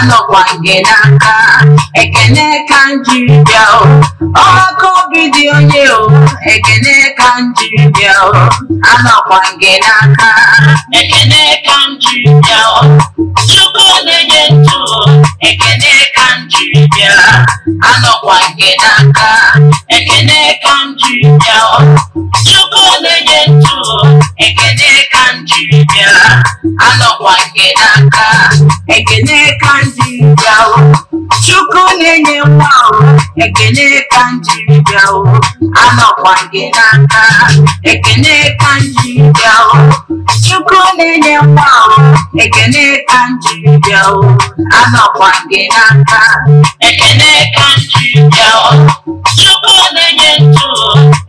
anọkwa gị n'aka ekene ka eka jiri bịa ọkụ obi dị onye o ekene ka eka jiri bịa anọkwa gị n'aka ekene ka m bịa chukwu na-enye ntụ ekene ka m jiri bịa anọkwa gị n'aka ekene ka m jiri bịa chukwu na-enye ntụ ekene ka jiri bịara anọkwa nke n'aka ekene ka njiri bịawo chukwu na-enye nwa ekene ka njiri bịawo anọkwa nke n'aka ekene ka njiri bịawo chukwu na-enye nwa ekene ka njiri bịawo anọkwa nke n'aka ekene ka njiri bịawo chukwu na-enye ntụ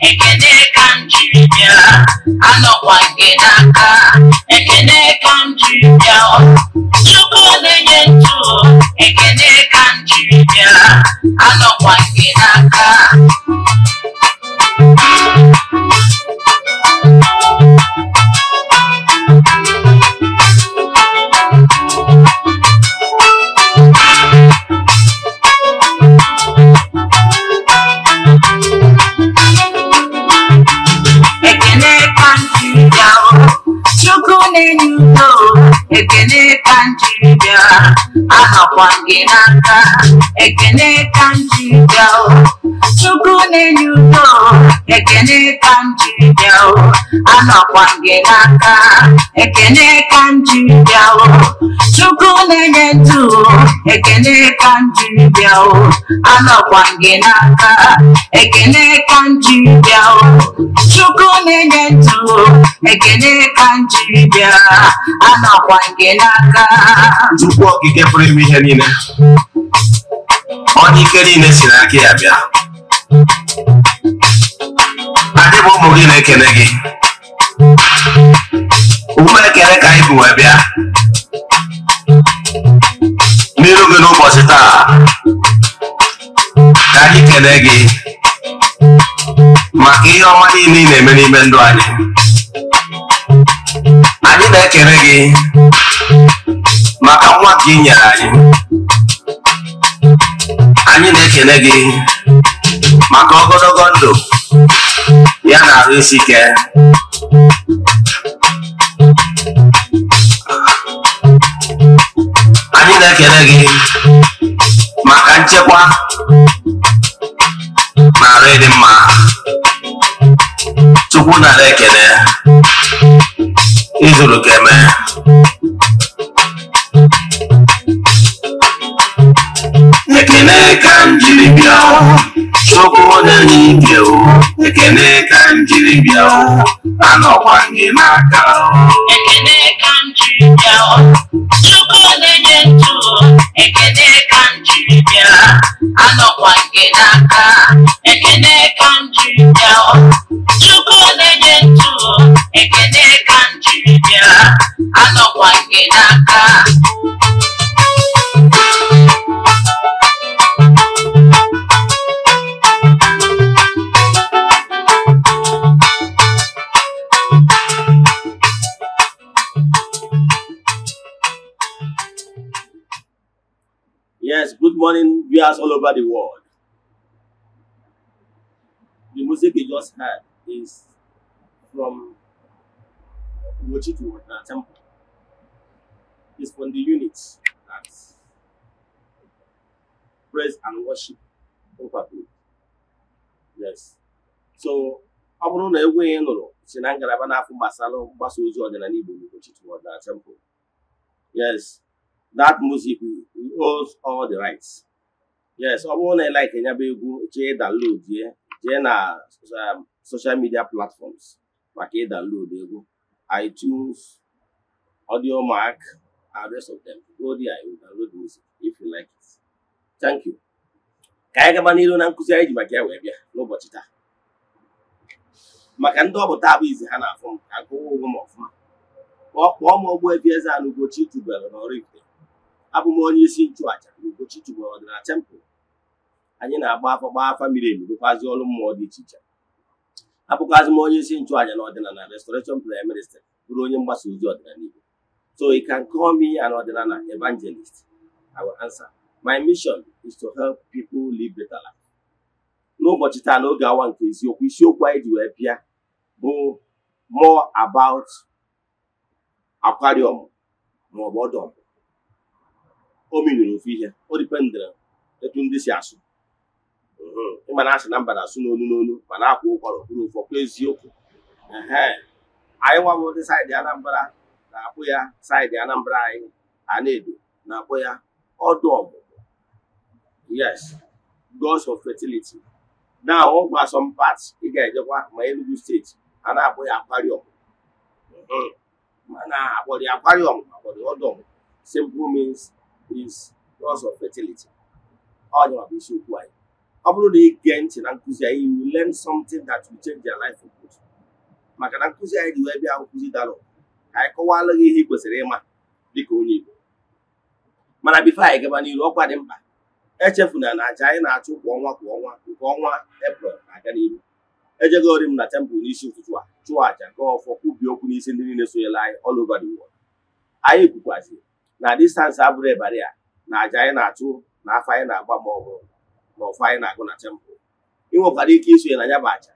ekene ka njiri bịara anọkwa nke n'aka ekene ka m jiri bịa chukwu na-enye ntụ ekene ka m jiri bịa anọkwa nke n'aka akwa gị n'aka ekene ka m ji chukwu na-enye ụtọ. ekene ka m jiri bịa o gị n'aka ekene ka m chukwu na-enye ndụ ekene ka m jiri bịa o anọkwa gị n'aka ekene ka m jiri bịa o chukwu na-enye ndụ ekene ka m jiri bịa anọkwa gị n'aka chukwu okike pụrụ ime ihe niile ọnụ ike niile si n'aka ya bịa adị bụ ụmụ gị na-ekele gị ụmụ ekele ka anyị bụ wee bịa n'iru gị n'ụbọchị taa ka anyị kelee gị maka ihe ọma niile ị na-eme n'ime ndụ anyị anyị na-ekele gị maka nwa gị nyere anyị anyị na-ekele gị maka ogologo ndụ ya na ahụ isi ike anyị na-ekele gị maka nchekwa na arụ ịdị mma tupu nara ekele ịzụrụ ka eme ekele ka m bịa nsogbu dị n'ike o ekene ka m jiri bịa anọkwa gị n'aka o ekene ka m jiri bịa o chukwu na-enye ekene ka m jiri anọkwa nke n'aka ekene ka m jiri bịa o chukwu na-enye ekene ka m jiri anọkwa nke n'aka Yes, good morning, viewers all over the world. The music you just heard is from Mochitu uh, Temple. It's from the units that praise and worship Overview. Yes. So, ọ bụrụ na egwu ihe nụrụ si na ngalaba na-afụ gbasara mgbasa ozi ọdịnala Igbo n'ụbọchị Chitun Temple. Yes. that music holds all the rights yes ọ bụrụ na ị like nyaba egwu chee download ya jee na um, social media platforms maka ị download egwu iTunes Audiomack and rest of them go there you download music if you like it thank you ka anyị gaba n'iru na nkụzi anyị ji maka ya wee bịa n'ụbọchị taa maka ndị ọ bụ taa bụ izi ha na-afụ m ka gụwa ụgwọ m ọfụma kpọọ m ọgbọ Ogbuefi Eze-Ana Ugochi tubelu n'Ọraifite abụ m onye isi nchụaja n'Ugochi Chukwuọdị na anyị na-agba afọ gbaa afa miri emi dịkwazị ọrụ mmụọ dị iche iche abụkwazị m onye isi nchụaja na ọdịnala restoration prayer bụrụ onye mgbasa ozi ọdịnala Igbo so you can call me an ọdịnala evangelist I will answer my mission is to help people live better life. n'ụbọchị taa n'oge awa nke isiokwu isiokwu anyị ji wee bịa bụ more about aquarium ma o meriri ofu ihe o dipendere etu ndị si asụ ịma na asị na mba na-asụ n'onu n'onu ma na-akwa ụkwara kwuru ụfọ eziokwu anyị nwa ụdị saịdị Anambra na-akpụ ya saidị Anambra anyị Anedo na-akpụ ya ọdụ ọmụmụ yes gods of fertility na ọgwụ asọmpat ị ga-ejekwa ma Enugu steeti a na-akpụ ya akwariọm mana akpọrọ ya akwariọm akpọrọ ọdụ ọmụmụ simple means is loss of fertility ọ bụ anyị ọ bụrụ na ị gee ntị na nkụzi anyị you will learn something that will change your life for good maka na nkụzi anyị dị wee bịa nkụzi dalụ ka anyị kọwaala gị ihe ị kwesịrị ịma dịka onye Igbo mana bifo anyị gaba n'iru ọkwa dị mkpa Echefu na aja anyị na-achụ kwa ọnwa kwa ọnwa nke ọnwa eprel na-aga n'ihu ejegori m na tempụl n'isi ụtụtụ a chụọ aja gọọ ọfọ kwubie okwu n'isi ndị niile sonyela anyị all over the world anyị kwukwaziri na distansị abụrụ ịbara a na aja anyị na-achụ na afọ anyị na-agba ma ọ bụrụ na ọfọ anyị na-agụ na tempụ ị nwekwara ike isonye na ya bụ aja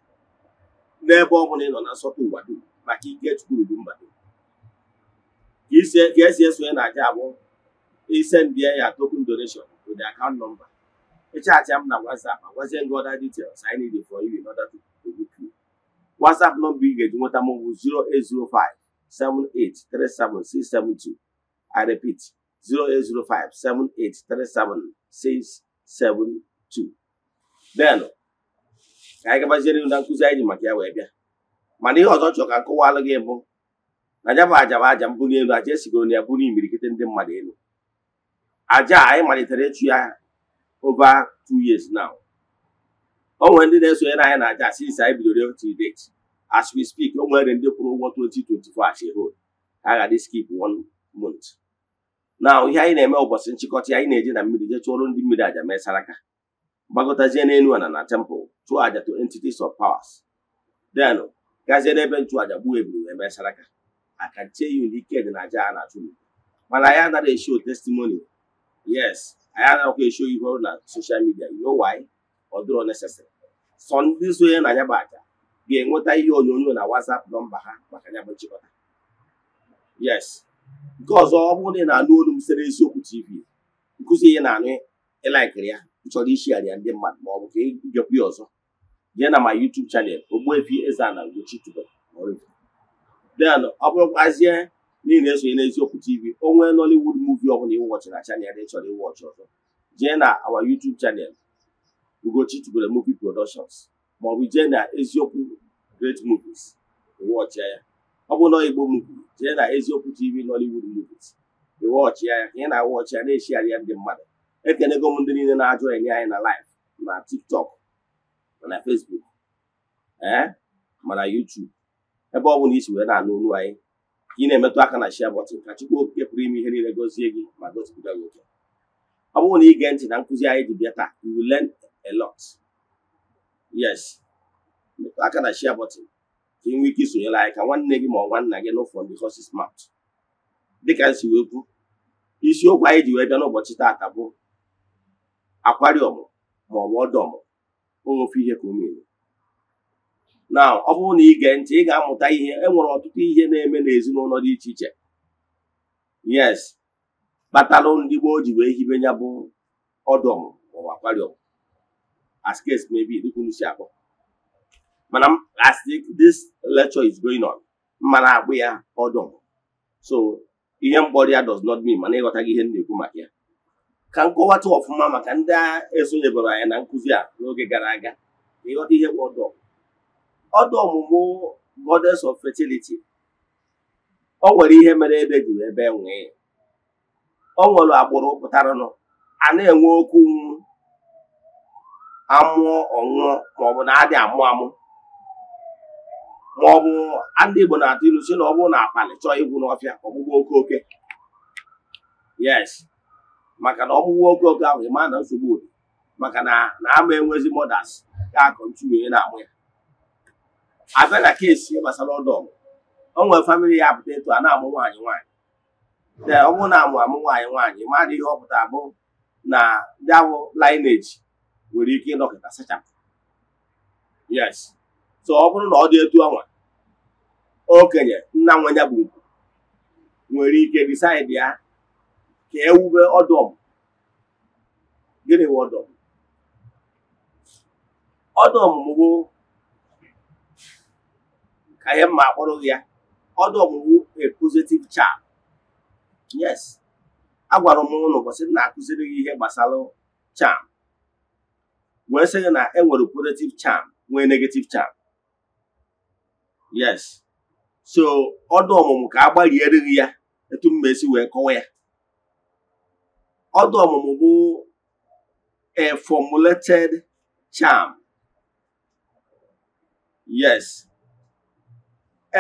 n'ebe ọ bụla ị nọ na nsọpụ ụwa dum maka ike Chukwu du mba dum ka esi esonye na aja abụ isendie ya token donation to the account number ịchaatịa m na WhatsApp agwazie gị other details I need for you in order WhatsApp nọmba ị ga-eji nweta mụ bụ 0805 78 37672. I repeat, 0805 7837 672. Then, ka anyị gabaziere na nkụzi anyị ji maka ya wee bịa mana ihe ọzọ chọrọ ka nkọwalụ gị bụ na aja bụ aja bụ aja mbuli elu aja esigoro na ya bụrụ imirikite ndị mmadụ elu aja anyị malitere ịchụ ya over two years now o nwere ndị na-esonyere anyị na aja since anyị bidoro till date as we speak o nwere ndị kwụrụ ụgwọ 2024 as a whole ha ga-adị skip one month na ihe anyị na-eme ụbọchị nchịkọta anyị na-eje na mmiri jee chụọrọ ndị mmiri aja mesara aka gbagotazie n'elu ala na temple chụọ aja to entities of powers then gazie n'ebe nchụaja gbuo ebiri wee mee saraka aka ya ike dị na aja a na-achụ mana anyị anaghị eshio testimony yes anyị anaghịkwa eshio ihe ọrụ na social midia you ọdụrọ why ọ dịrọ sọ ndị sonye na ya aja ga-enweta ihe onyonyo na WhatsApp nọmba ha maka ya nchịkọta yes nke ọzọ ọ bụrụ na ị na-anụ olu m sere eziokwu tv nkụzi ihe na-anụ ịlaikiri ya ịchọrọ ishigharị ya ndị mmadụ ma ọ bụ ka ịbịakwu ya ọzọ jee na ma YouTube chanel Ogbuefi Eze-Ana Ugochi tubelu den ọ bụrụkwazie na ị na-esonye n'eziokwu tv onwe Nollywood muvi ọ bụla ịwọchị na chanel ị chọrọ ịwọchị ọzọ jee na awa YouTube chanel Ugochi tubelu movie productions ma jee na eziokwu great movies ịwọchịa ya ọ bụ na igbo muvi na eziokwu tv nollywood movies ị ọchị ya ka ị na-awa ọchị ya na-eshigharị ya ndị mmadụ ekenego m ndị niile na-ajụ enye anyị na live na tiktok na facebook ee eh, mana youtube ebe ọ bụla isi wee na-anụ olu anyị ka ị na-emetụ aka na share button ka Chukwu Okike pụrụ ime ihe niile gọzie gị ma gozipụta gị oke ọ bụrụ na ị gee ntị na nkụzi anyị dị bịa taa you will learn yes metụ aka na share ka ị nwee ike isonyere anyị ka nwanne gị ma ọ nwanna gị nụ from the horse's dịka nsi wee kwu isiokwu anyị ji wee bịa n'ụbọchị taata bụ akwariọm ma ọ bụ ọdọm ihe ka omere na ọ bụrụ na ige ntị ị ga-amụta ihe e nwere ọtụtụ ihe na-eme n'ezinụlọ dị iche iche yes kpatalụ ndị gboo ji wee hibe ya bụ ọdọm ma ọ bụ akwariọm as case maybe dịka si akpọ mana as this lecture is going on mana akpụ ya ọdụ so ihe mkpọrọ ya does not mean mana ịghọtaghị ihe na-ekwu maka ya ka nkọwata ọfụma maka ndị esonyebere anya na nkụzi a n'oge gara aga ịghọta ihe bụ ọdụ ọdụ ọmụmụ goddess of fertility o nwere ihe mere ebe juru ebe nwee o nwere agbụrụ pụtaranụ a na-enwe okwu amụọ ọṅụọ maọbụ na adị amụ amụ ma ọ bụ ndị Igbo na-atụ ilu si na ọ bụrụ na akpali chọọ igwu n'ọfịa ọgbụgbọ oke oke yes maka na ọgbụgbọ oke oke ahụ ịma na nsogbu maka na na ama enwezi modas ga akọntu ntuwunye na-amụ ya abịa na kesi gbasara ọdọ o nwere famili ya pụta etu a na-amụ nwaanyị nwaanyị ọ bụrụ na amụ amụ nwaanyị nwaanyị mmadụ ihe ọ pụta bụ na ndị awụ lineage nwere ike ịnọkịta sachapụ yes so ọ bụrụ na ọ dị etu ọnwa okenye nna nwenya bụ ugwu nwere ike disaịdị ya ka ewube ọdụm gịnị bụ ọdụm ọdọm bụ ka ihe mma akpọrọ ya ọdụm bụ a positive charm yes agwara m ụlọ ụbọchị na-akụziri gị ihe gbasara cham wee sị gị na enwere positive cham nwee negative cham. yes so ọdụ ọmụmụ ka a gbalierịghị ya etu m esi wee kọwa ya ọdụ ọmụmụ bụ a formulated charm yes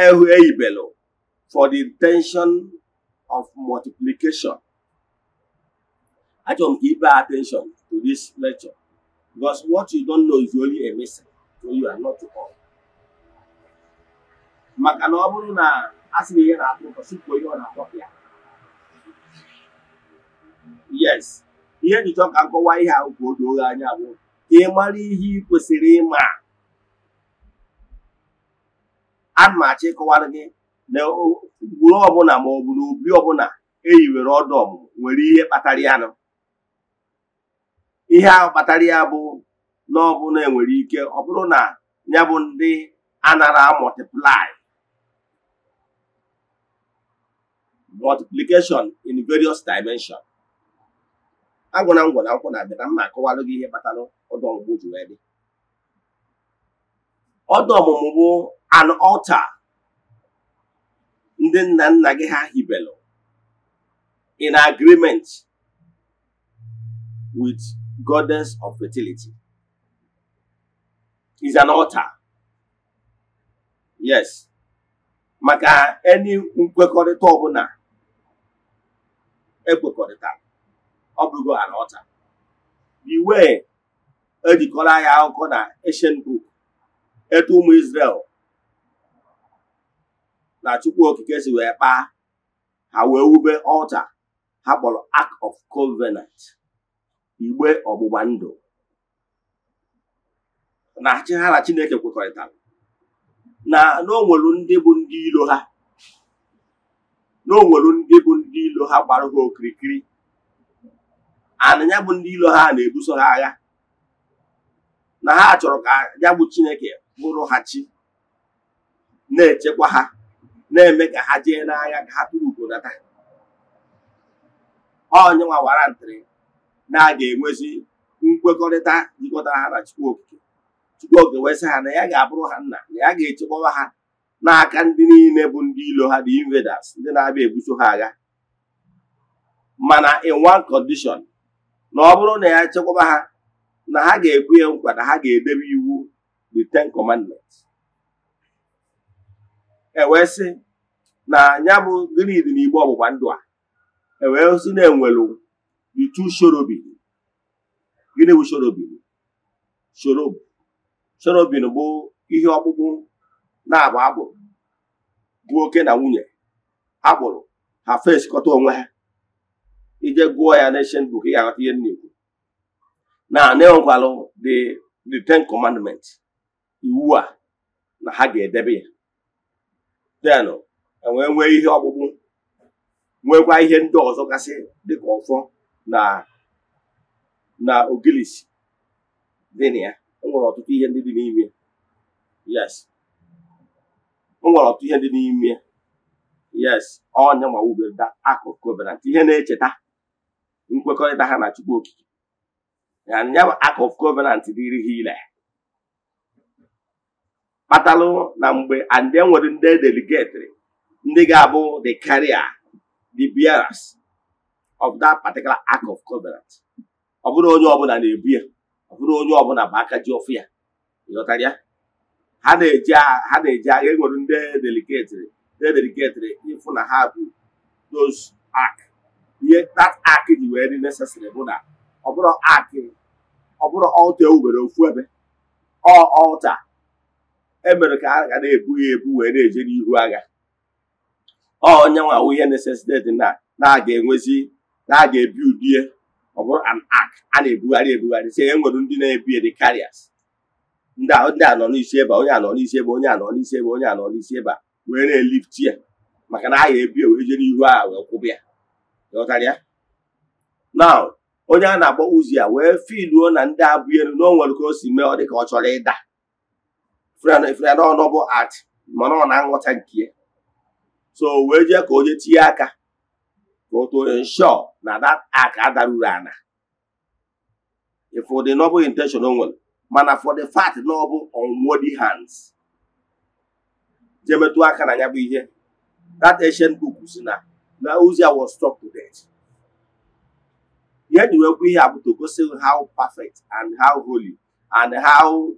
ehu eyibelu for the intention of multiplication achọrọ m ka ị attention to this lecture because what you don't know is only a mistake so you are not to all. maka na ọ bụrụ na asịrị sị na ihe na-atọ ụtọ sụpụ ihe ọ na-atọ ya yes ihe njichọ ka nkọwa ihe ahụ ka o doo gị anya bụ ka ị mara ihe ị kwesịrị ịma ana m achọ ịkọwara gị na gburu ọbụla ma ọ bụ na obi ọbụla e ọdụ ọmụmụ nwere ihe kpatara ya nụ ihe ahụ kpatara ya bụ na ọbụla enwere ike ọ bụrụ na ya bụ ndị anara mọtiplai multiplication in various agwọ na ngwọ na akwụkwọ na-abịa na mma akọwalụ gị ihe kpatara ọdụ ọmụmụ ji wee dị ọdụ ọmụmụ bụ an altar ndị nna nna gị ha hibelu in agreement with goddess of fertility is an altar yes maka any nkwekọrịta ọbụla ekwekọrịta ọ bụrụ ala na iwe ejikọrọ ya akụkọ na eshen buk etu ụmụ Izrel na Chukwu okike si wee kpaa ha wee wube ọcha ha kpọrọ Ark of Covenant igbe ọgbụgba ndụ na chi na Chineke kwekọrịtara na na o nwere ndị bụ ndị iro ha na nwere ndị bụ ndị ilo ha gbara ha okirikiri ana ya bụ ndị ilo ha na-ebuso ha agha na ha chọrọ ka ya bụ Chineke bụrụ ha chi na-echekwa ha na-eme ka ha jee n'agha ka ha tụrụ data onye nwa wara ntịrị na a ga-enwezi nkwekọrịta jikọtara ha na Chukwu Okike Chukwu Okike wee ha na ya ga-abụrụ ha nna na ya ga-echekwawa ha n'aka ndị niile bụ ndị ilo ha dị invaders ndị na-abịa ebuso ha agha mana in one condition na ọ bụrụ na ya chekwaba ha na ha ga ekwenye ihe nkwa na ha ga-edebe iwu the ten commandments ewee sị na ya bụ dị n'igbe ọgbụgba ndụ a ewee na enwelu the two shorobin gịnị bụ shorobin shorob shorobin bụ ihe ọkpụkpụ na abụọ agbụrụ oke na nwunye agbụrụ ha fesikọta onwe ha ije gụọ ya n'eshen buk ya aghọta ihe nnekwu na anịọgwalụ the the ten commandment iwu a na ha ga-edebe ya then enwee nwee ihe ọkpụkpụ nwekwa ihe ndị ọzọ gasị dịka ọfọ na na ogilisi dị na ya enwere ọtụtụ ihe ndị dị n'ime yes m nwere ọtụ ihe dị n'ime ya yes ọnya mawubeda akụkụ covenant ihe na-echeta nkwekọrịta ha na Chukwu Okike ya bụ akụ of covenant dịrị ha ile kpatalụ na mgbe and enwere ndị e delegatri ndị ga-abụ the carrier the bearers of that particular act of covenant ọ bụrụ onye ọbụla na-ebu ya ọ bụrụ onye ọbụla bụ aka ji ọfụ ya ịghọtara ya ha na-eji ha na-eji agha enwere ndị deliketịrị ndị deliketịrị ịfụ na ha bụ dos ak. ihe that ak ji wee dị necessary bụ na ọ bụrụ ark ọ bụrụ ọlta ewubere ofu ebe ọ ọlta emere ka a ga na-ebu ya ebu wee na-eje n'ihu agha ọ onye nwa awụ ihe necessity na na-aga enwezi na-aga ebi udie ọ bụrụ an ak a na-ebugharị ebugharị sị, enwere ndị na-ebi dị karịas. ndị a nọ n'isi ebe onye a nọ n'isi ebe onye a nọ n'isi ebe onye a nọ n'isi ebe a wee na-elifti ya maka na aha ebi wee jere ihu a wee kwụba ya ghọtara ya na onye a na-akpọ uzi ya wee filuo na ndị abụ elu na o nwere ka o si mee ọ dị ka ọ chọrọ ịda freda ọnụ bụ at mana ọ na-aghọta nke ya so wee jee ka o je tinye aka ka o too na that aka adaruru ana ịfụ dị nọbụ intenshọn o nwere mana for the fact na ọ bụ unworthy hands jee metụ aka na ya bụ ihe that ancient book si na na ozi was struck to death ihe jiwekwa ihe a to gosi how perfect and how holy and how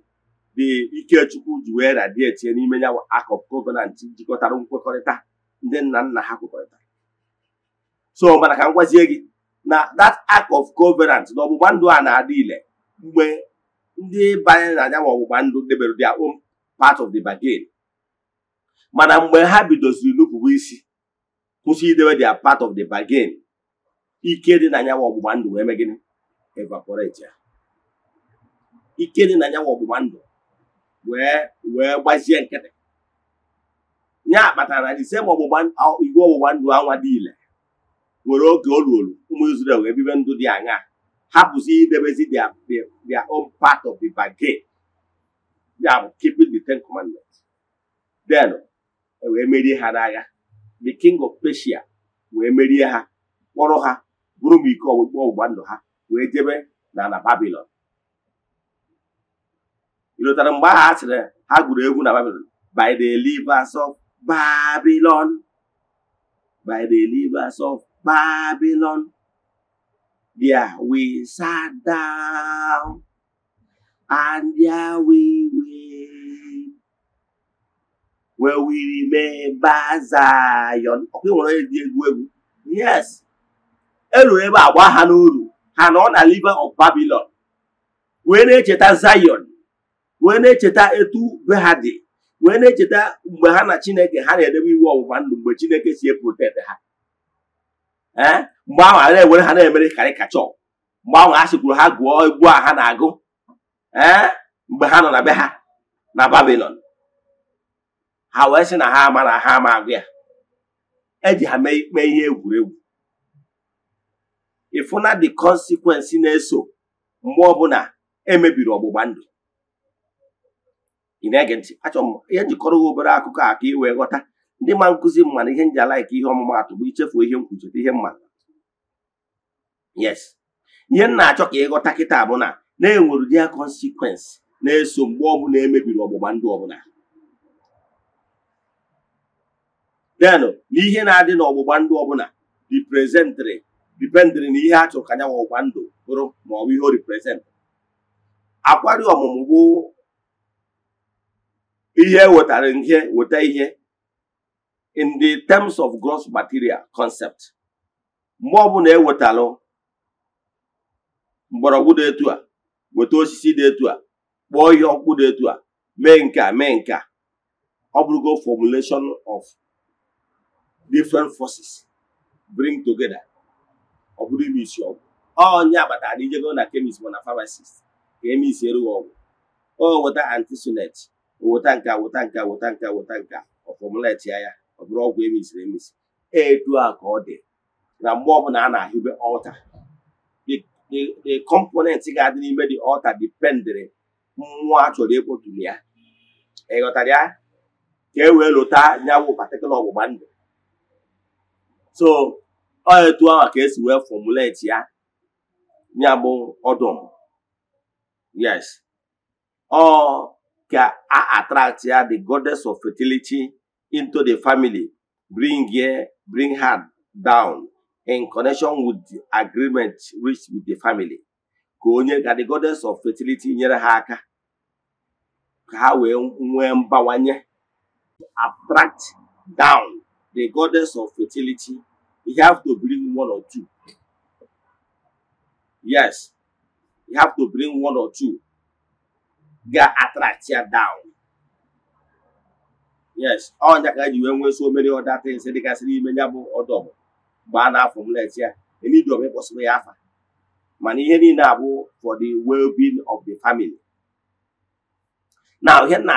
the ikechukwu ji wee radiate n'ime ya act of covenant jikọtara nkwekọrịta ndị nna nna ha kwekọrịta. so mana ka m gwazie gị na that act of covenant na ọgbụgba ndụ a na-adị ile mgbe ndị banye na anyanwụ ọgbụgba ndụ debere dia own part of the bargain mana mgbe ha bidoziri nupụwa isi kwụsị idebe dia part of the bargain ike dị na anyanwụ ọgbụgba ndụ wee mee gịnị evaporate ya ike dị na anyanwụ ọgbụgba ndụ wee wee gbazie nkịtị ya kpatara na ise igwe ọgbụgba ndụ anwa dị ile nwere oge o ụmụ Izrel wee bibe ndụ dị aṅaa ha bụzi idebezi their own part of the bargain ya bụ keeping the ten commandments then e wee merie ha ya the king of Persia wee merie ha kpọrọ ha bụrụ m iko ọgbụgbọ ọgbụgba ndụ ha wee jebe na Babilọn ịlụtara mgbe ahụ ha sịrị ha gụrụ egwu na Babilọn by the rivers of Babylon by the rivers of Babylon There we sat down and there we went. When we remember Zion. Yes. Elu ebe agba ha n'olu ha nọ na liver of Babylon wee na-echeta Zion wee na-echeta etu be ha dị wee na-echeta mgbe ha na Chineke ha na-edebe iwu ọgbụgba ndụ mgbe Chineke si eprotet ha ee mgbe ahụ a na-ewere ha na-emere karịkachọ mgbe ahụ a sịkwuru ha gụọ egwu a ha na-agụ ee mgbe ha nọ na be ha na babilon ha wee sị na ha ama na ha ama agụ ya eji ha mee ikpe ihe egwuregwu ịfụna the consequence na-eso mgbe ọbụla emebiri ọgbụgba ndụ ị na-ege ntị achọrọ m ihe njikọrọ obere akụkọ a ka ị wee ghọta ndị ma nkụzi m mana ihe njala ike ihe ọmụmatụ bụ ichefu ihe m ihe mma yes ihe m na-achọ ka ịghọta kịta bụ na na-enwere dia consequence na-eso mgbe ọbụla emebiri ọgbụgba ndụ ọbụla denụ na ihe na-adị n'ọgbụgba ndụ ọbụla reprezentịrị dipendịrị na ihe a chọrọ ka anya ọgbụgba ndụ bụrụ ma ọ bụ ihe o reprezentị akwari ọmụmụ bụ ihe e wetara ihe weta ihe in the terms of gross material concept mgbe ọbụla ewetalụ mgbọrọgwụ dị etu a weta osisi dị etu a kpọọ ihe ọkpụ dị etu a mee nka a mee nke a ọ bụrụgo formulation of different forces bring together ọ bụrụ ime isi ọgwụ onye abatara ijego na chemist ma na pharmacist ka eme isi erughị ọgwụ o weta antisunet weta nka weta nka weta nka weta nka ọ formulate ya ya ọ bụrụ ọgwụ emisiri emisi etu a ka ọ dị na mgbe ọbụla a na-ahịbe ọta the component ga-adị n'ime dị ọta dipendịrị mmụọ achọrọ chọrọ ịkpọtụrụ ya ịghọtara ya ka e wee lụta nyawụ patikụla ọgbụgba ndụ so ọ etu ahụ ka esi wee fọmuleti ya ya bụ ọdụm yes ọ ka a ya the goddess of fertility into the family, bring here, bring her down in connection with the agreement reached with the family. Ka onye the goddess of fertility nyere ha haka. ka ha wee mbawanye attract down the goddess of fertility. You have to bring one or two. Yes, you have to bring one or two. Ga attract her down. yes ọ ka ji wee nwee so mere ọda ya bụ ọdọbụ mgbe a na-afọ mlet ya elidiom ịkpọsịrị ya afa mana ihe niile abụ for the well-being of the family na ihe na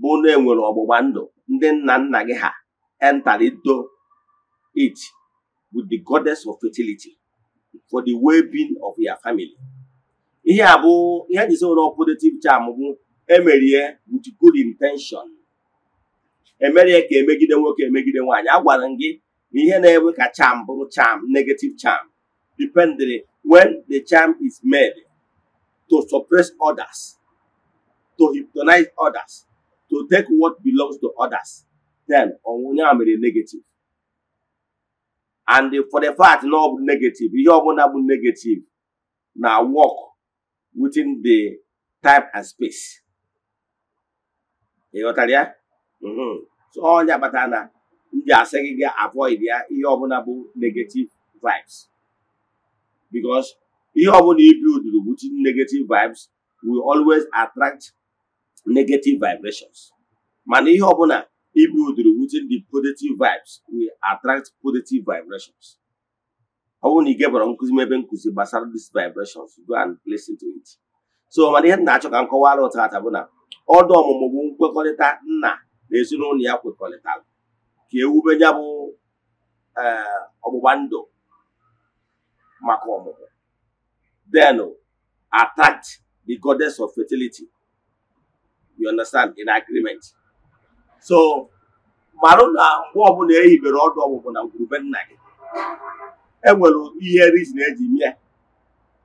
bụ na enwere ọgbụgba ndụ ndị nna nna gị ha entarido it with the ihe abụ ihe emerie e with good intention emere ka emegide nwoke emegide nwaanyị agwara m gị na ihe na-ewe ka charm bụrụ charm negative charm dependere when the charm is made to suppress others to hypnotize others to take what belongs to others then onwunye a mere negative and for the fact na ọ bụ negative ihe ọbụla bụ negative na work within the time and space ịghọtara ya Mhm. ọnya kpatara na m asị gị ga avoid ya ihe ọbụla bụ negative vibes because ihe ọbụla ibi which negative vibes will always attract negative vibrations mana ihe ọbụla ibuilduru which is the positive vibes will attract positive vibrations ọ bụrụ na ị gebara nkụzi m ebe nkụzi gbasara this vibrations go and place to it so mana ihe na-achọ ka m kọwara ụtata bụ na ọdụ ọmụmụ bụ nkwekọrịta nna na ezinụlọ ya kwekọrịtara ka ewube ya bụ e, ọgbụgba ndụ maka ọmụmụ then attacked the goddess of fertility you understand in agreement so marụ na mgbe ọbụla ehibere ọdụ ọgbụgbụ na ngwurube nna gị enwere ihe reason eji mie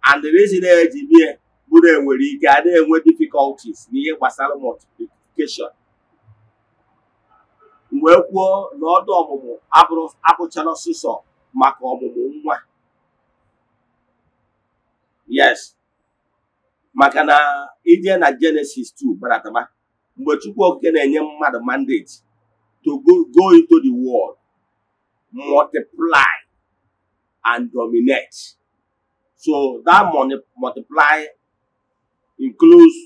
and the reason eji mie bụrụ enwere ike a na-enwe difficulties n'ihe gbasara multiplication wee kwuo na ọdụ ọmụmụ abụchala ọsịsọ maka ọmụmụ nwa yes maka na ije na Genesis 2 barataba mgbe Chukwu Okike na-enye mmadụ mandate to go into the world multiply and dominate so that multiply includes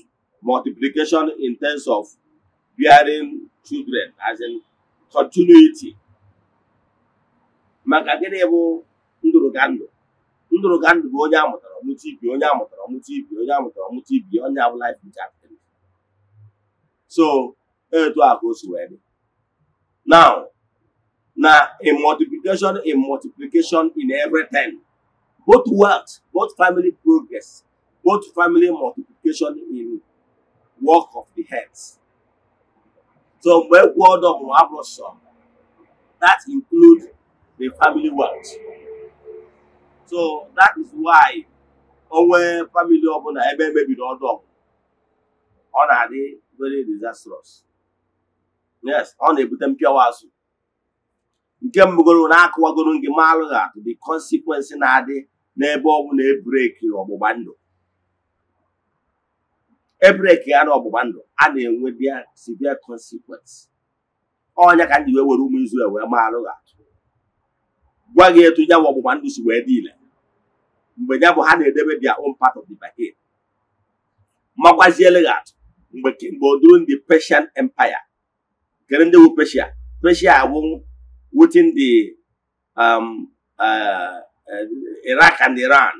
multiplication in terms of bearing children as in continuity maka gịnị bụ ndụrụgandụ ndụrụgandụ bụ onye amụtara ọmụta ibi onye amụtara ọmụta ibi onye amụtara ọmụta ibi onye abụla life injected so etu a ka o si wee dị now na in multiplication in multiplication in everything both work both family progress both family multiplication in work of the hands So when word of Abraham, that includes the family wealth. So that is why onwe family ọbụla ebe emebiri ọdụ ọ na-adị very disastrous. Yes, ọ na-ebute mpịawa azụ. Nke mgbogoro na-akụwagoro gị maalụ ha the consequence na-adị n'ebe ọ bụ na ebreki ọgbụgba ndụ ebreki ya na ọgbụgba ndụ a na-enwe dia severe consequence ọnya ka ndị wee were ụmụ Izrel wee maalụ ha gwa gị etu ya bụ ọgbụgba ndụ si wee dị ile mgbe ya bụ ha na-edebe dia own part of the bargain makwaziele gị atụ mgbe mgbe oduru ndị Persian Empire kere ndị bụ Persia Persia bụ wetin di um, uh, uh, Iraq and Iran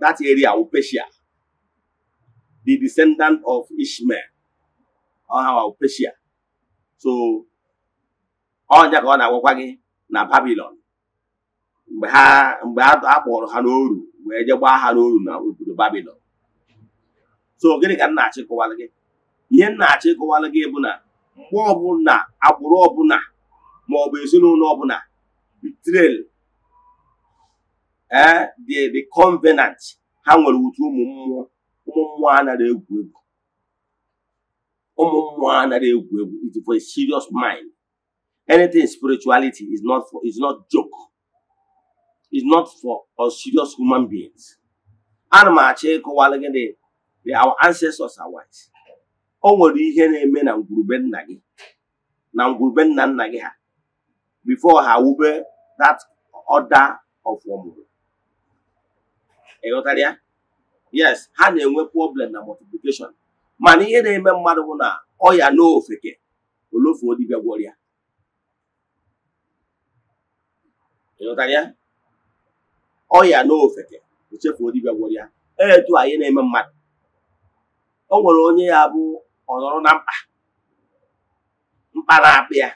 that area bụ Persia the descendant of Ishmael or Persia. So, ọnya ka ọ na-agwakwa gị na Babilon mgbe ha mgbe a kpọrọ ha n'oru wee je gbaa ha n'oru na obodo Babilon. So gịnị ka na achị kụwalụ gị? Ihe na achị kụwalụ gị bụ na mgbe ọbụla agbụrụ ọbụla ma ọ bụ ezinụlọ ọbụla betrayal ee eh, the the covenant ha nwere utu ụmụ mmụọ ụmụ mmụọ anaghị egwu egwu ụmụ mmụọ anaghị egwu egwu it for a serious mind anything spirituality is not for is not joke is not for us serious human beings ana m achọ ịkọwalụ gị dị our ancestors are white o nwere ihe na-eme na ngwurube nna gị na ngwurube nna nna gị ha before ha wube that order of ọmụrụ ịghọtara ya yes ha na-enwe problem na multiplication mana ihe na-eme mmadụ bụ na ọya na ofeke olofuo dibịa ya ọya na ofeke echefuo dibịa e, etu anyị na-eme mmadụ o nwere onye ya bụ ọnọrọ na mkpa mkpa na-apịa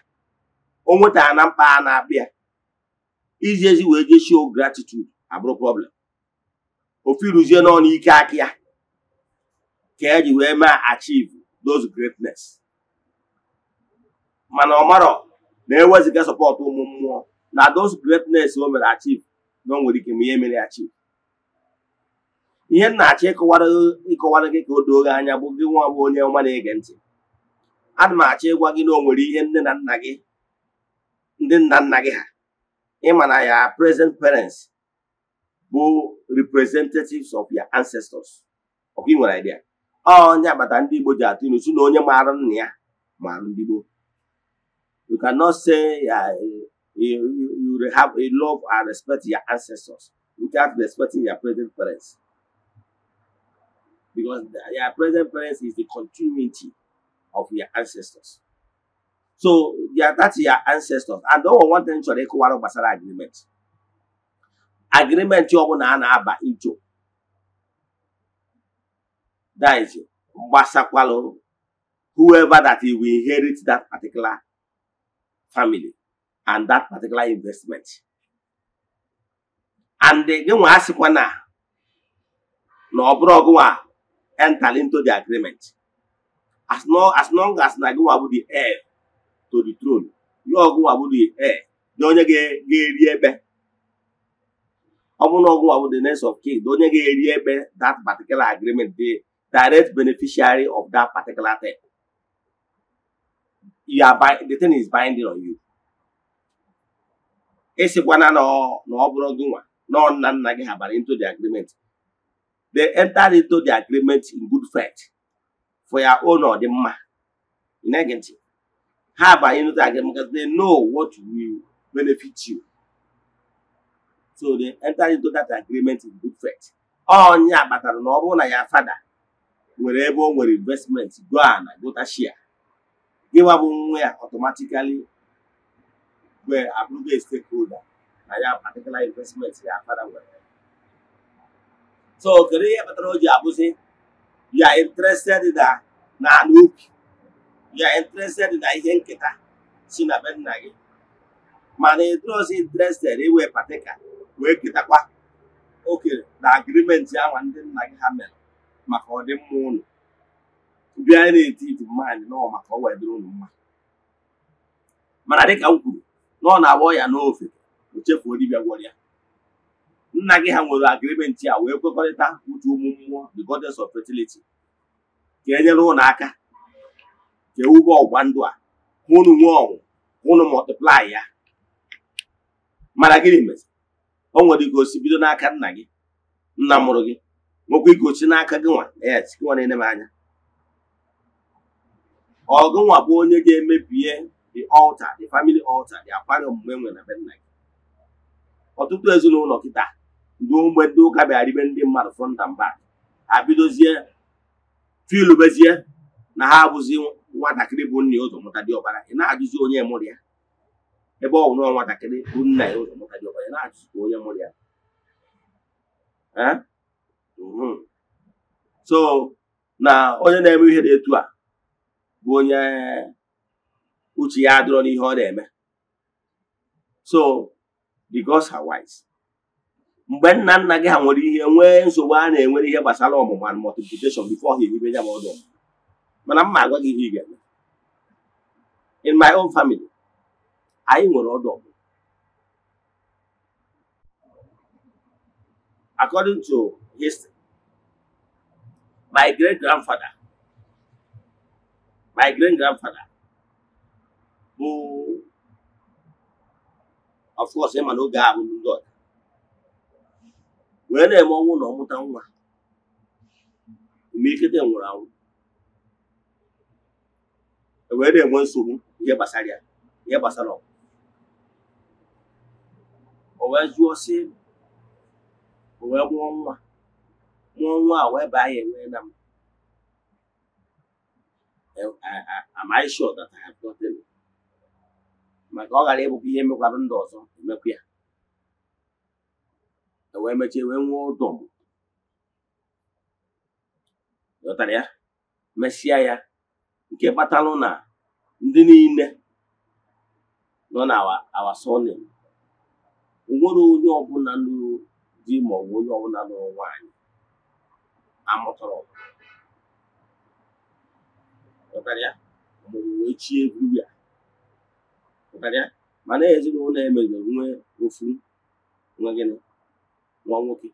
o nwetara na mkpa na abịa iji ezi wee jeshio gratitude abụrụ problem ofiruzie n'ọnụ ike aka ya ka eji wee mee achivu those greatness mana ọmarọ na-eweziga sọpọtụ ụmụ mmụọ na those greatness o mere achivu na o nwere ike ma ihe mere achieve ihe nna na-achọ ịkọwara gị ka o doo gị anya bụ gị nwa bụ onye ọma na-ege ntị ana m achọ ịgwa gị na o nwere ihe nne na nna gị ndị nna nna gị ha ịma na ya present parents bụ representatives of your ancestors ọkwa ị idea onye agbata ndị Igbo ji atụ ilu si na onye maara nna ya maara ndị Igbo you cannot say uh, you, you, have a love and respect your ancestors without respecting your present parents because your present parents is the continuity of your ancestors so that's your ancestors and all one thing chọrọ ịkụwara gbasara agreement agrimenti ọbụla a na-aba ijo diz gbasakwalụ whoever that he will inherit that particular family and that particular investment and gị nwa asịkwa na na ọ bụrụ ọgụnwa enter into the agreement as long as long as na gịnwa nwa bụ the heir to the throne ya ọgụnwa bụ the heir na onye ga-eri ebe ọ bụrụ na ọ bụ the next of kin onye ga-eri ebe that particular agreement dey direct beneficiary of that particular thing you are the thing is binding on you ịsịkwana na ọ bụrụ gị nwa na nna nna gị ha bara into the agreement they enter into the agreement in good faith for your own or ị na-ege ntị ha abanye into the agreement because they know what will benefit you so they enter into that agreement in good faith onye akpatara na ọ bụrụ na ya fada nwere ebe o nwere investment go na gota share gịwa bụ nwa ya automatically were abụrụgo stakeholder na ya particular investment ya fada nwere so kedu ihe kpatara o ji abụzi you are interested na na anụ ubi you are interested na ihe nketa si na be nna gị mana ịdrozi interested iwe patika wee ketakwa oke na agrimenti ahụ ndị nna gị ha mere maka ọdịmma ụlọ bịa na-eti iti mmadụ nọ maka ọwa wee dịrị ụlọ mma mana dịka m kwuru na ọ na-agba ya n'ofe o chefuo dibịa gwọrọ ya nna gị ha nwere agrimenti a wee kwekọrịta uche ụmụ mmụọ the goddess of fertility ka e nyere ụlọ aka ka ewube ọgwa ndụ a hụ unu nwee ọnwụ hụ unu multiply ya mana gịnị mezi o nwere igosi bido n'aka nna gị nna mụrụ gị nwekwa igosi n'aka gị nwa yes gị nwa na-ene m anya ọgụ nwa bụ onye ga-emebie the altar the family altar dị akwa omume nwere na be nna gị ọtụtụ ezinụlọ kịta ndị mgbe ndị ụka bịaribe ndị mmadụ fọnda mba ha bidozie filubezie na ha abụzi nwatakịrị bụ nna ụzọ mụta dị ọbara ị na-ajụzi onye mụrụ ya ebe ọ bụ nọọ nwatakịrị bụ nna ya ụzọ mụta gị ọbanye na-achụsụ onye mụrụ ya so na onye na-eme ihe na etu a bụ onye uche ya adịrọ n'ihe ọ na-eme so the gods are wise mgbe nna nna gị ha nwere ihe nwee nsogbu a na-enwere ihe gbasara ọmụma na multiplication before ha eribe ya ma ọdụ mana m ma agwa gị ihe ị ga-eme in my own family anyị nwere ọdụ ọgụ according to history my great grandfather my great grandfather bụ of course ịma na oge ahụ ndị ọda wee na-eme ọnwụ na ọmụta nwa imirikete nwụrụ anwụ e wee na-enwe nsogbu ihe gbasara ya ihe gbasara ọgwụ o wee jụọ sị o wee mụọ nwa mụọ nwa a wee baa ya enwee na m e, am I sure that I have maka ọ ghara ịbụkwa ihe mekwara ndị ọzọ emekwa ya e wee mechie wee nwee ụdọ m ghọtara ya mesịa ya nke kpatalụ na ndị niile nọ na awa awa onwere onye ọbụla lụrụ di ma ọ onye ọbụla lụrụ nwanyị amụtara chi ya mana ezinụlọ emere nwe ofu nwa gịnị nwa nwoke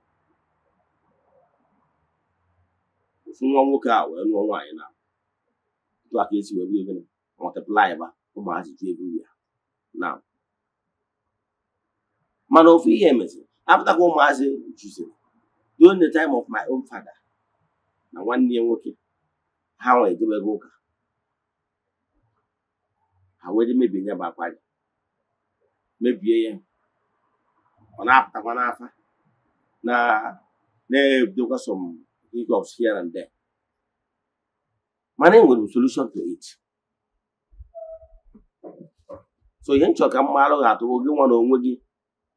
ofu nwa nwoke a wee lụọ nwaanyị na esi wee bido gịnị mọtịplaị ba ụmụazị mana ofu ihe meziri apụtakwa ụmụazị juziri during the time of my own father na nwanne ya nwoke ha nwe edebego ụka ha were mebie ya bụ akwa mebie ya ọ na-apụtakwa n'afa na na-ebidokwa some hiccups here and there mana e nwere solution to it so ihe nchọ ka m maalụ ga gị nwa na onwe gị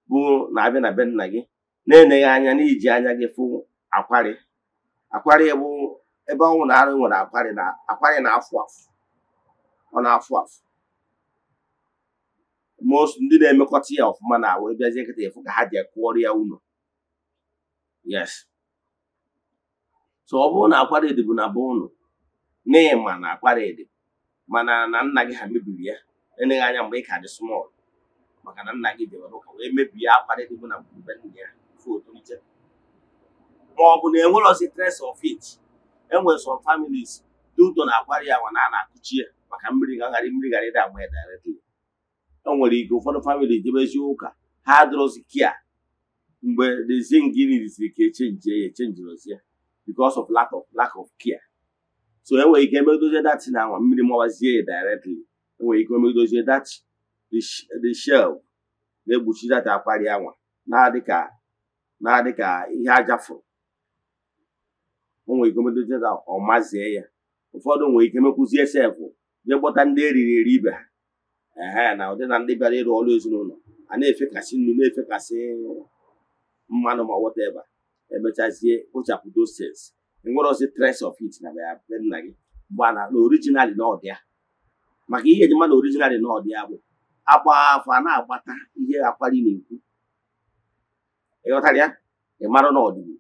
bụ na-abịa na be nna gị na-eneghị anya iji anya gị fụ akwarị akwarị bụ ebe ọnwụ e na arụ nwere akwarị na akwarị na-afụ afụ ọ na-afụ afụ most ndị na-emekọta ya ọfụma na awụ bịazie nkịta efu ka ha ji kụọrọ ya ụlọ yes so ọ bụrụ na akwari dị bụ na be ụnụ ịma na akwari dị mana na nna gị ha mebiri ya eneghị anya mgbe ị ka dị small maka na nna gị dewere ụka wee mebie akparị dị bụ na gburube nna ya otolite ma ọ bụ na enwerozi tres of it enwere som families dị na-akwari ya na a na-akụchi ya maka mmiri gagharị mmiri gharị dị agba ya directly o nwere ike ụfọdụ famili debezi ụka ha kia mgbe the zingini risiri ka echenji ya echenjirozi ya because of lack of lack of care so enwere ike emedozie datin na nwa mmiri mawazie ya directly enwere ike emedozie datin the shelf na-egbochi data akpari anwa na-adị ka na-adị ka ihe aja fụrụ o nwere ike medozi data ọ mazie ya ụfọdụ nwere ike mekwuzie sef jee kpọta ndị eriri eri ibe ha ehe na ụdị na ndị bịara ịrụ ọrụ ezinụlọ a na-efekasị nnu na-efekasị mmanụ ma ebe wọteva emechazie kpochapụ doses enwere tres of it na ya nna gị mgbe na originali na ọdịa maka ihe eji mmadụ orijinal na ọdịa bụ agba afọ a na-agbata ihe akwari na-ekwu ịghọtara ya ị mara na ọdịbụ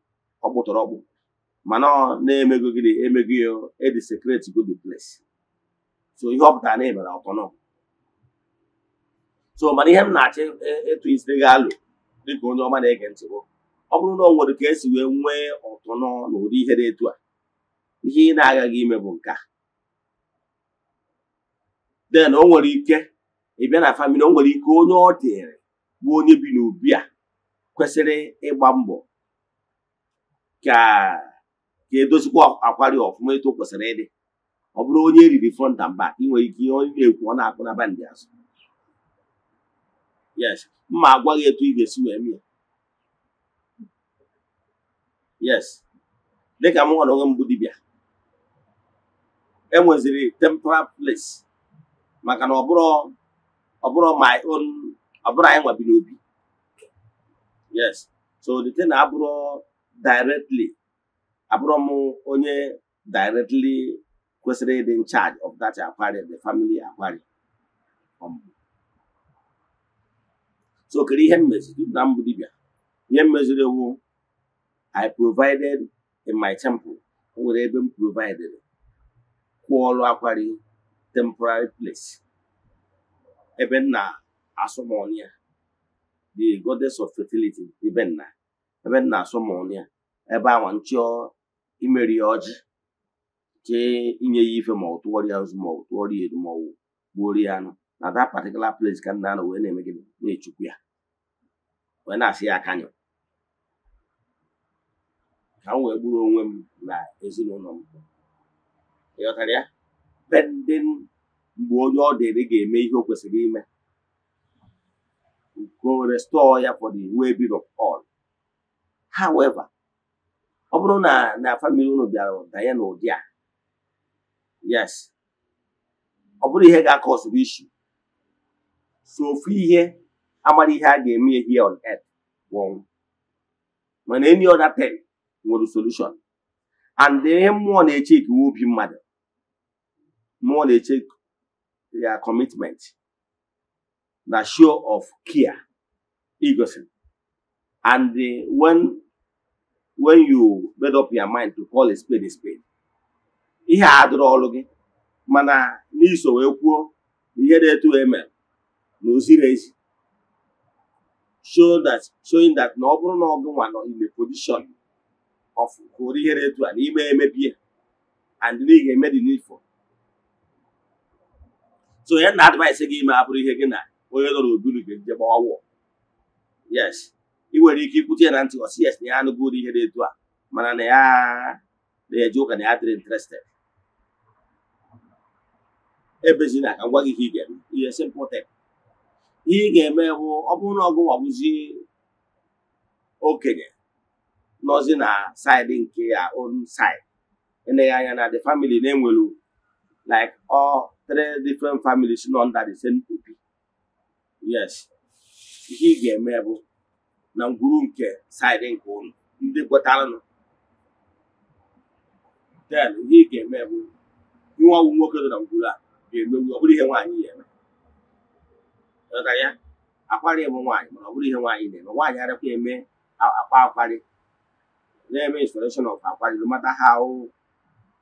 ọkpụtọrọ ọkpụ mana na-emego gịnị emego ya edi sekreti go so ihe ọ na emere ọtọnọ so mana ihe m na achị ịtụ e, isi gị alụ dịka onye ọma na-ege ntị bụ ọ bụrụ na ọ nwere ka esi wee nwee ọtọnọ na ụdị ihe na etu a ihe ị na-agaghị ime bụ nke a den o nwere ike ị bịa na famili o nwere ike onye ọ dịrị bụ onye bi n'obi a kwesịrị ịgba mbọ ka ka edozikwa akwari ọfụma etu kwesịrị ịdị ọ bụrụ onye eriri front and back ị nwere ike ihe onye na-ekwu ọ na-akpụ na bandị azụ yes mma agwa gị etu ị ga-esi wee mee yes dịka m hụrụ onwe mbụ dibịa enweziri temporal place maka na ọ bụrụ ọ bụrụ my anyị nwabiri obi yes so the thing na abụrụ directly abụrụ m onye directly kwesịrị ịdị in charge of that aquarium the family aquarium um, so kere ihe mmeziri na mbụ dibịa ihe mmeziri ewu i provided in my temple o nwere ebe m provided kwụọlụ akwari temporary place ebe nna asọmọnụ the goddess of fertility ibe nna ebe nna asọmọnụ ya ebe awa nchịọ imeri ya ọjị nke inye ya ife ma ọ tụọrọ ya ozu ma ọ tụọrọ ya eru ma ọ gbuoro ya anụ na that particular place ka nna anọ wee na-eme gịnị na-echukwu ya wee na-asị ya akanyụ ka m wee gburu onwe m na ezinụlọ m ịghọtara ya bending mgbe onye ọ dịrị ga-eme ihe o kwesịrị ime go restore ya for the way being of all however ọ bụrụ na na famili unu bịara danye n'ụdị a yes ọ bụrụ ihe ga-akọsịrị ishi so ofu ihe amara ihe a ga-eme here on earth bụ ọnwụ mana any other thing nwere solution and ihe mmụọ na-eche ikiwe obi mmadụ mmụọ na-eche their commitment na show of care egoism and the, when when you made up your mind to call a spade a spade ihe a dụrụ ọrụ gị mana n'iso wee kwuo ihe dị etu eme na oziri ezi show that showing that na ọ bụrụ na ọgụ nwa nọ in the position of kụrụ ihe dị etu a n'ime emebie and na ị ga-eme the so ya na advice gị ime abụrụ ihe gị na onye nọ n'oburu gị nje gbawa wọ yes ị nwere ike ikwute ya na ntị ọsị yes na ya anụgo ihe dị etu a mana na ya na-eje ụka na ya dịrị interested ebezina ka m gwa gị ihe ị ga-eme ihe simple ihe ị ga-eme bụ ọ bụrụ na ọgụ ọbụzi okenye nọzi na saịdị nke ya own side eleghị anya na the family na-enwelu like ọ three different families nọ under the same yes ihe ị ga-eme bụ na ngwuru nke saịdị nke ụlọ ndị gwọtaranụ then ihe ị ga-eme bụ inwe ọgwụ nwoke na ngwuru a ga-emegbu ọ bụrụ ihe nwaanyị ga-eme ya akwarị bụ nwaanyị mana ọ bụrụ ihe nwaanyị na-eme nwaanyị arakwa eme akwa akwarị na-eme of akwarị no matter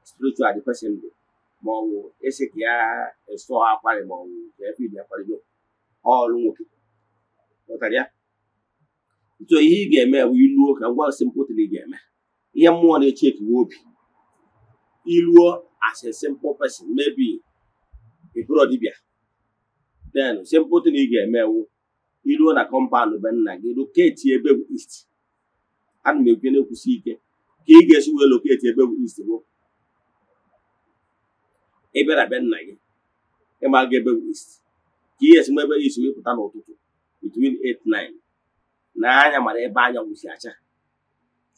spiritual the person ma ọ bụ esi ka ya esụ akwarị ma ọ bụ ka efe ibi akwarị ọrụ nwoke pụtara ya ntu ihe ị ga-eme bụ iluo ka ngwa si mpụtara ị ga-eme ihe mmụọ na-eche ekewa obi iluo as a simple person maybe ịbụrụ dibịa then simpụtụ na ị ga-emewu iluo na kọmpaụnd be nna gị loketi ebe bụ east ana m ekwu na-ekwusi ike ka ị ga-esi wee loketi ebe bụ east bụ ịbịara abịa nna gị ịma ga ebe west ka ihe esi ebe isi pụta n'ụtụtụ between 8-9 na anya mara ebe anyanwụ si acha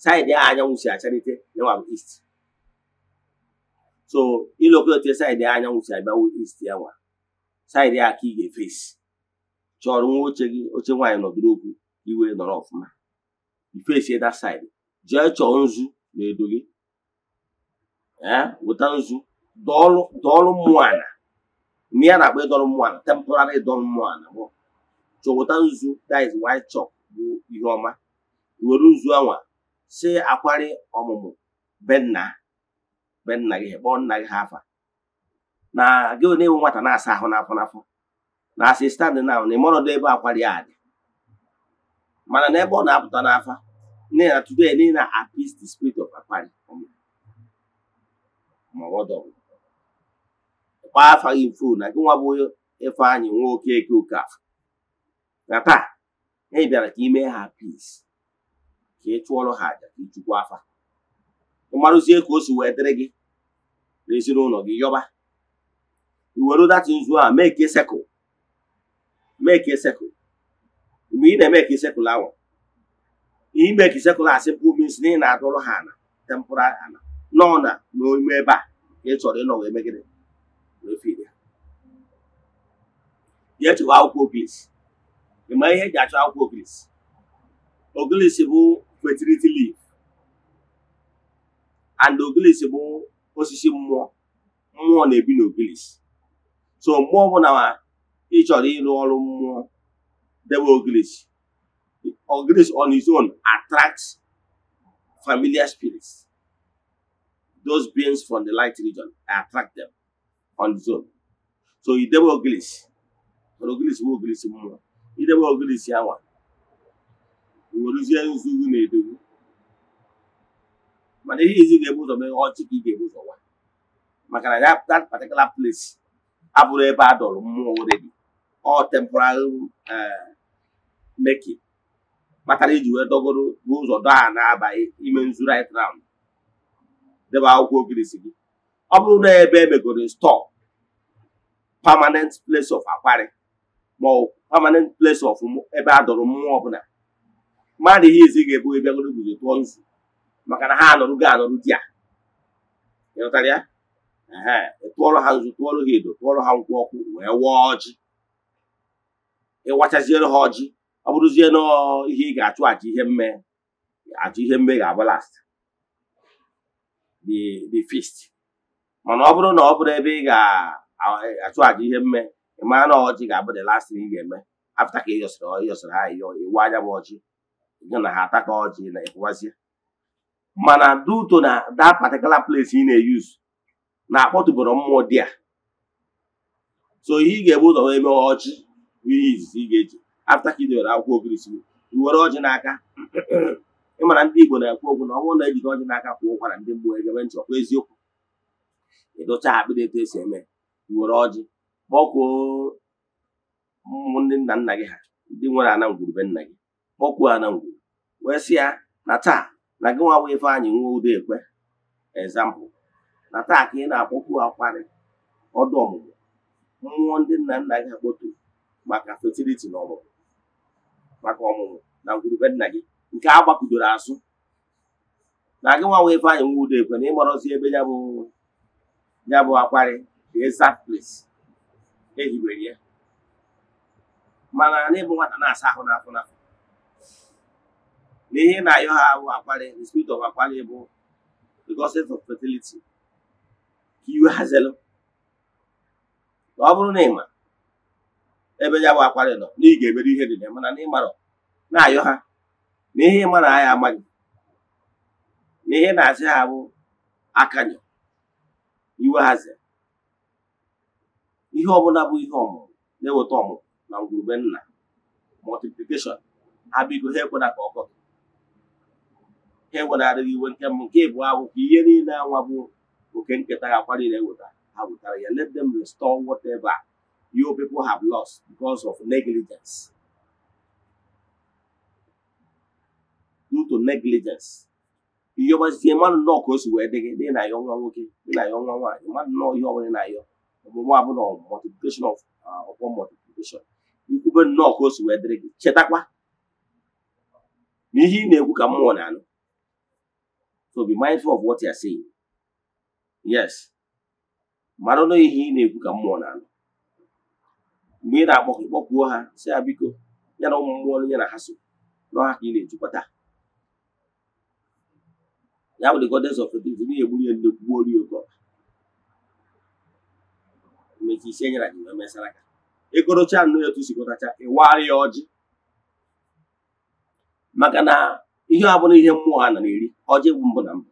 saịdị ahụ anyanwụ si acharite yanwa bụ east so ilokọta saịdị anyanwụ si abịawo east ya nwa saịdị a ka ị ga-efesi chọrọ nwa oche gị oche nwaanyị nọdụrụ okwu iwe nọrọ ọfụma ifesi ịda saịdị jee chọọ nzu na edo gị weta nzu dọọlụ mmụọ ala mgbe ya na-akpọ ịdọrọ mmụọ ala temporary ịdọrọ mmụọ ala bụ chọpụta nzu that is white chalk bụ ihe ọma were nzu anwa si akwari ọmụmụ be nna be nna gị kpọọ nna gị ha na gị onye nwe nwata na-asa ahụ na n'afọ na na asị stand na na ịmọrọdụ ebe akwari a dị mana n'ebe ọ na-apụta n'afa nne na today n'i na appease the spirit of akwari maọbụ ọdọgwụ kpaa afa gị mfu na gị nwa bụ Ifeanyị nwa Okeke Okafọ na taa anyị bịara ka imee ha pis ka ị chụọrọ ha aja ka ịchụkwa afa ịmarụzie ka o si wee dịrị gị na ezinụlọ gị yọba iwere data nzu a mee ka sekụl mee ka sekụl mgbe ị na-eme ka sekụl ahụ ime ka sekụl a sịpụ mis na ị na-adọrọ ha na tempụra ana nọ na n'ime ebe a ka ị chọrọ ịnọwa emegide n'ofe ya chọwa akwụkwọ oglis ị ma ihe eji achọ akwụkwọ oglis oglis bụ fertility leaf and oglis bụ osisi mmụọ mmụọ na-ebi n'oglis so mmụọ bụ na ị chọrọ ịrụ ọrụ mmụọ debe oglis oglis on its own attracts familiar spirits those beings from the light region attract them on its own. So idebe ogilisi mana ogilisi bụ ogilisi mmụọ idebe ogilisi awa iweruzie nzugu na edogwu mana ihe izi ga-ebu ụzọ mee ọchị ka ị ga-ebu ụzọ nwa maka na that particular place abụrụ ebe a dọrọ mmụọ already ọ temporary eh, making kpatara iji wee dọgoro n'ụzọ dọ ha na-abaghị ime nzu right round debe akwụkwọ ogirisi gị ọ bụrụ na ebe emegoro stọọ permanent place of akwari ma ọ permanent place of ebe a dọrọ mmụọ ọbụla mmadụ ihe izi ga-ebu ebe bịagoro guzo tụọ nzu maka na ha anọrụ gị anọrụ di a ịghọtara ya tụọrọ ha nzu tụọrọ ha edo tụọrọ ha nkwụ ọkụ wee wụọ ji. ịwachaziere ha ọjị ọ bụrụzie na ihe ị ga-achụ aja ihe mme achụ ihe mme ga-abụ last the feast mana ọ bụrụ na ọ bụrụ ebe ị ga achụaja ihe mme ịmaa na ọjị ga-abụ the last thing ị ga-eme afta ka ịyọsịrị ịyọsịrị ha ịyọ iwu anya bụ ọjị gị na ha ataka ka ọjị na ịkụwazie mana duto na that particular place ị na-eyuz na-akpọtụboro mmụọ dị a so ihe ị ga-ebu ụzọ eme ọjị ihe izizi ị ga-eji afta ka ị dewere akwụkwọ ogirisi iwere ọjị n'aka ịmara ndị Igbo na-ekwu okwu na ọ bụrụ na ejide ọjị n'aka kwụ ụkwara ndị mmụọ egebe ntị ọkwa eziokwu ịdụcha akpịrị etu esi eme were ọjị kpọkwuo ụmụ ndị nna nna gị ha ndị nwere ana nna gị kpọkwuo ana ngwuru wee sị ya na taa na gị nwa ife anyị nwa udo ekwe ezampụ na taa ka ị na-akpọkwu akwarị ọdụ ọmụmụ mmụọ ndị nna nna gị akpọturu maka fertility na ọmụmụ maka ọmụmụ na ngwurube nna gị nke a gbakudoro azụ na gị nwa ife anyị nwa udo ekwe na ịgbọrọzi ebe ya bụ ya bụ akwarị the exact place ya mana bụ nwata na-asa ahụ n'afọ na ayọ ha bụ akpali the spirit of bụ the of fertility ka iwe ọ bụrụ na ịma ebe ya bụ nọ na ga-ebedo ihe dị na mana n'i mara na-ayọ ha na ihe na amaghị na ha bụ iwe ihe ọbụla bụ ihe ọmụmụ na-eweta ọmụmụ na ngwurube nna multiplication ha bigo ha ekwena ka ọkọ ha iwe nke mbụ nke ịbụ akwụkwọ ihe niile anwa bụ oke nketa ga akwa niile eweta ha wetara ya let them restore whatever your people have lost because of negligence due to negligence iyọbazie mmadụ nọọ ka o si wee dị gị dị na ya nwa nwoke dị na ya nwa nwaanyị mmadụ nọọ ihe ọbụla na ya ọmụmụ abụ na multiplication of uh, upon multiplication ikwube nnọọ ka o si wee dịrị gị chetakwa n'ihe ị na-ekwu ka mmụọ na-anụ so be mindful of what you are saying yes mara na ihe ị na-ekwu ka mmụọ na-anụ mgbe ị na-akpọ ịkpọkwuo ha si ya biko ya na ụmụ mmụọ onye na ha so ha ka ị na-ejikọta ya bụ the goddess of fertility na-egburi ya nnekwu orie ga-emechi isi enyere gị wee mesara aka ịgụrụcha e nnụ etu sigụtacha ịwarị ya ọjị maka na ihe ọ bụla ihe mmụọ a na eri ọjị bụ mbụ na mbụ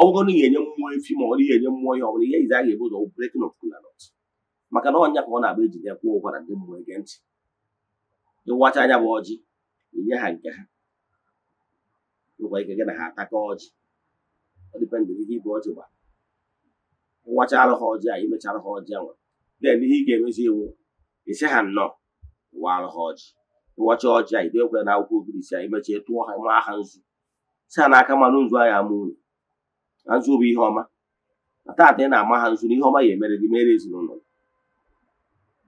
ọ bụrụ na ị ga mmụọ efi ma ọ bụrụ ga-enye mmụọ ihe ọ bụla ihe ize a ga-ebu ụzọ breaking of kolanọt maka na ọnya ka ọ na-agba ejide kwụọ ụkwara ndị mmụọ ege ntị ịwacha anya bụ ọjị inye ha nke ha nwekwa ike gị na ha ataka ọjị ọ dịpendị ihe ibe ọjị gbara wachara ha ọjị a imechara ha ọjị nwa den ihe ị ga-emezi iwu isi ha nnọọ wara ha ọjị ịwacha ọjị a idekwe na akwụkwọ obirisi a imechie tụọ ha maa ha nzu si ha n'aka mmanụ nzu ahịa ama unu na nzu bụ ihe ọma na taata ị na-ama ha nzu na ihe ọma ya emere gị mere ezinụlọ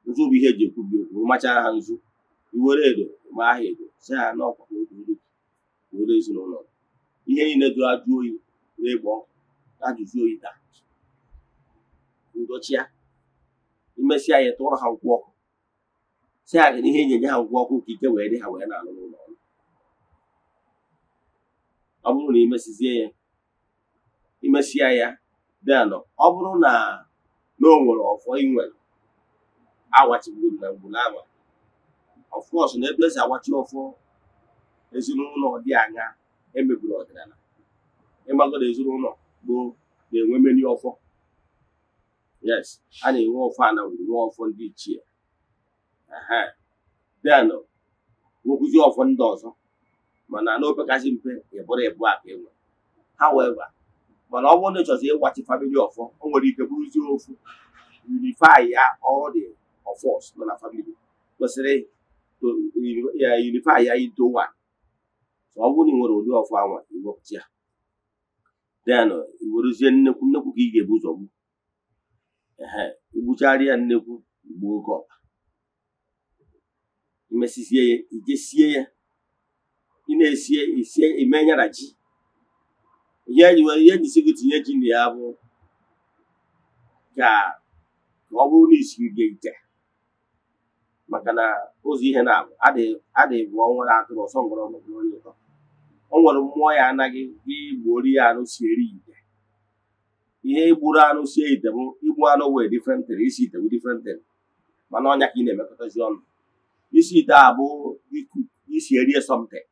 nzu bụ ihe eji ekwubi okwu machara ha nzu iwere edo ma ha edo si ha n'ọkwa were ezinụlọ ihe niile dụrụ ajụ oyi n'ịgbọ egbe ọkụ ajụjụ oyi taa ndochia imesịa ya tụọrọ ha nkwụ ọkụ si aga n'ihe na ihe ha nkwụ ọkụ ka ike wee dị ha wee na-alụ n'ụlọ ọrụ ọ bụrụ na imesizie ya imesịa ya denụ ọ bụrụ na na o nwere ọfọ inwere nwere na mgburu ama ọfkọs na ebe esi agwachi ọfọ ezinụlọ dị anya emebiri ọdịnala ịmagoro ezinụlọ gboo na-enwe meni ọfọ yes a na-enwe ọfọ anawuru nwe ọfọ ndị ichie then nwekwuzi ọfọ ndị ọzọ mana n'ofe kasị mpe ịbụrụ ịbụ aka enwe however mana ọ bụrụ na ịchọzi ịgwachi famili ọfọ o nwere ike bụrụzie ofu unify ya all the ọfọs nọ na famili kwesịrị unify ya into one ọ bụrụ na ị nwere ụdị ọfọ anwa iwepụta ya then iwerezie nnekwu nnekwu ka ị ga-ebu ụzọ gbu igbuchara ya nnekwu igbu oke ọkpa imesisie ya ijesie ya ị na-esie isie ime nyara ji ihe ihe jisi gị tinye ji na ya bụ ka ọ bụrụ na isiri gị ite maka na ụzọ ihe na-abụ adịghị bụ ọnwa na atụrụ ọsọ ngwọrọ ọ nwere mmụọ ya anaghị gị gbuori ya si eri ya ihe igburu anụ sie ite m igbu anụ wee different thing isi ite bụ different thing mana ọnya ka ị na-emekọtazi ọnụ isi ite a bụ isi erie something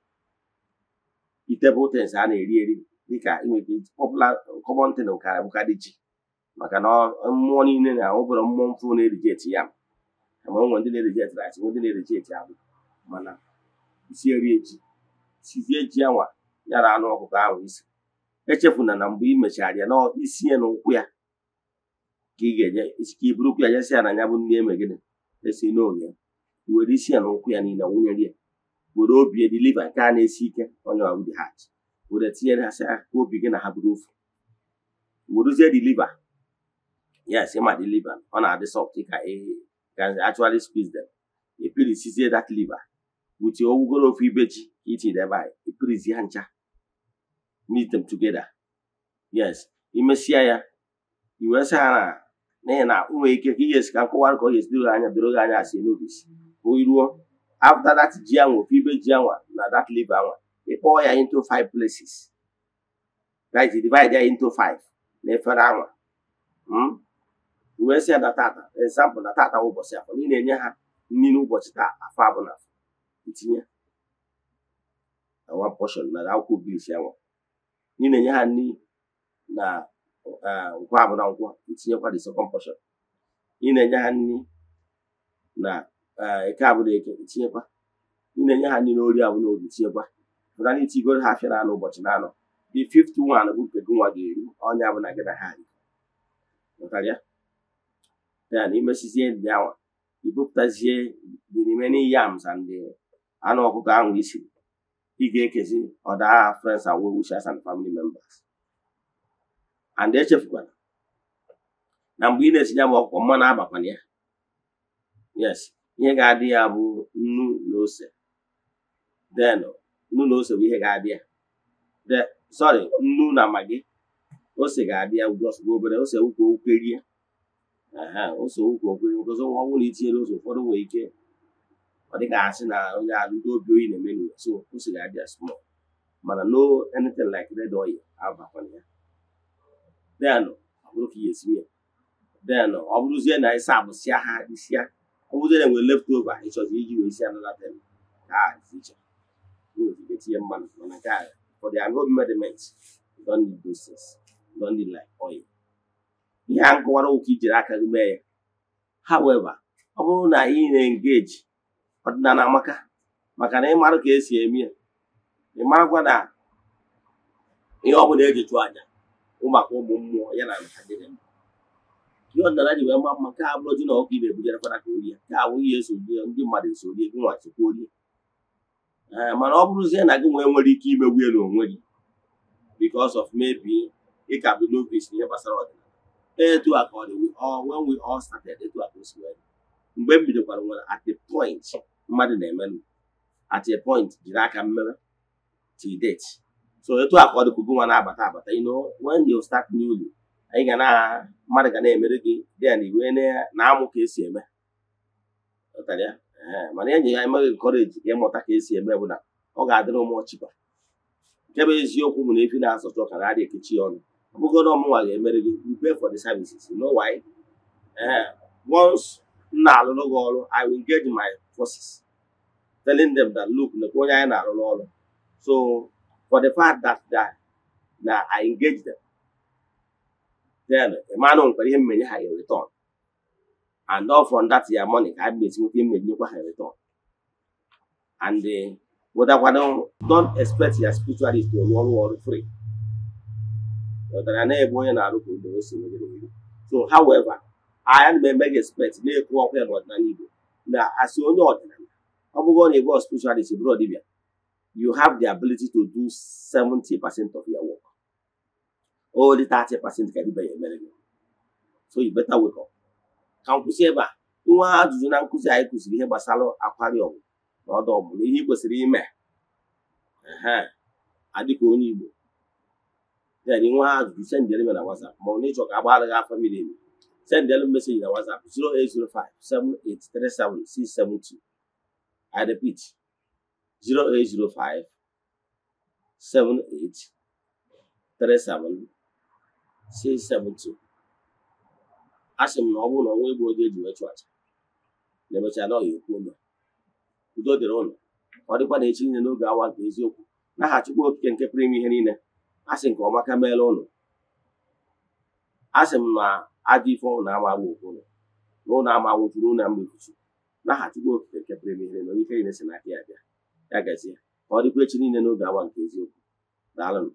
ite bụ tens a na-eri eri dịka inweta popular common thing kara bụkarị ji maka na mmụọ niile na-awụbụrụ mmụọ mfụ na eti ya ma ọ ndị na-erijeti eti rice ndị na eti abụ mana isi erie ji sizie ji ya na anụ ọkụkọ ahụ isi echefuna na mgbe ị mechara ya n'isi ya na ụkwụ ya ka ị ga-enye ka i burukwu ya nyesi ya na ya bụ ndị eme gịnị esi n'oge were isi ya na ụkwụ ya niile nwụnyere ya were obi ediliva nke a na-esi ike onye ọbụla dị hat were tinyere ha sị ah, ka obi gị na ha bụrụ ofu werezie diliva si ma diliva ọ na-adị sọft ka actually squeeze them epirisizie that liver with ogwugoro ofu ibe ji itinye ebe a epirizi ya ncha meet them together yes Imesia ya i wee sị ha na n'ihi ike ka ihe esi ka nkọwara ka ọ ga-esi doro anya doro gị anya asị n'obi si oyi ruo after that ji anwa ibe ji anwa na that liver anwa ịkpọọ ya into five places right divide ya into five na efere anwa wee sị ya na tata example na tata ụbọchị afọ ị na-enye ha nri n'ụbọchị taa afọ abụla itinye na one portion na akwụkwọ gris anwa ị na-enye ha nri na nkwa abụna nkwọ itinyekwa the second portion ị na-enye ha nri na eke abụna eke itinyekwa ị na-enye ha nri na ori abụna ori itinyekwa pụta na itigoro ha afịa na-anọ ụbọchị na-anọ the fifth bụ nke gị nwa ga-eri ọnya bụ na gị na ha ya ya na imesizie ndị awa ibupụtazie n'ime remaining yams ndị anụ ọkụkọ ahụ isiri ị ga-ekezi ọdụ aha friends and well and family members and echefukwara na mgbe ị na-esinye m ọkwụkwọ mmanụ abakwana ya yes ihe ga-adị ya bụ nnu na ose then nnu na ose bụ ihe ga-adị ya sorry nnu na magi ose ga-adị ya ugwu obere ose ukwu okwerie ose ukwu okwerie nkozi na itinyere nwere ike ọ dịghị asị na onye alụ obi oyi na-eme n'ụwa so o siri adịa small mana no anything like red oil abakwana ya denụ ọ bụrụ ka ihe esi ya denụ ọ bụrụzie na ịsa abụsịa ha isịa ọ bụrụzie na left over ịchọzi iji wee isi anọla tem ka iche nwere tinye mmanụ mana nke a for the agro mediment don need those things don need like oil ihe a nkọwara ụka ijiri aka gị mee ya however ọ bụrụ na ị na engage. na amaka maka na ịmara ka esi eme ya ịmarakwa na ihe ọ bụla eji chụọ aja ụmụaka ụmụ mmụọ ya na ihe ọdịnala ji wee mma mma ka abụrụ ji na ọkụ ibe ebujerekwara ka orie ka abụ ihe esoghi ndị mmadụ esorie gị nwachikwa orie mana ọ bụrụzie na gị nwee nwere ike imegbu elu n'onwe gị because of maybe ịka ka bụ novice n'ihe gbasara ọdịnala etu a ka ọ dị when we all started etu a ka o mgbe m bidokwara nwere at the point mmadụ na-emenụ at a point jiri aka mmemme till date so etu a ka ọ dịkwugo nwa na-abata abata you know start newly anyị ga na mmadụ ga na-emere gị dịa na iwe na-amụ ka esi eme mana enyi ya emeghị nkọreji ka ịmụta ka esi eme bụ na ọ ga-adịrị ụmụ ọchịkwa nke bụ eziokwu bụ na efi na-asọtụ ụka na adị ekechi ọnụ ọ bụgoro ọmụnwa ga-emere gị you pay for the services you know once m na-alụrụ gị ọrụ I will engage my forces, telling them that, look, Nakoya and Arololo. So, for the fact that, that now I engage them, then a man on him may have a return. And all from that year money, I meet with him may have a return. And the but don't, don't expect your spirituality to one worry free. So, however, I am a mega to na-ekwu ọkụ ya n'ọdịnala Igbo na asị onye ọdịnala ọ bụghị na ebe spiritualist bụrụ dibia you have the ability to do 70% of your work only 30% ka dibia ya emere so you better wake up ka m kwụsị ebe a nwa ajụjụ na nkụzi anyị kụziri ihe gbasara akwari ọgwụ na ọdụ ọgwụ na ihe ị kwesịrị ime ee adịka onye Igbo then nwa ajụjụ sendere m na WhatsApp ma ọ na ịchọ ka agbaghara gị afọ miri emi send them message WhatsApp 0805 I repeat 0805 7837 672. m na ọ bụrụ na ọnwa egbu oge eji wee chụ aja na emechaa na ọya ụmụ ụlọ udo dịrị ụlọ ọ dịkwa na echi n'oge awa nke eziokwu n'aha Chukwu Okike nke pụrụ ime ihe niile nke ọma ka meela ụlọ asị m na ajọ ife ọnwụ na-amaghị okwu ụlọ na ụlọ amaghụtụrụ ụlọ mgbe mkpuchi naghachukwu okike nke pụrụ ime na onye ife ya bịa ya gazie ka ọ dịkwa echi niile n'oge awa nke eziokwu daalụ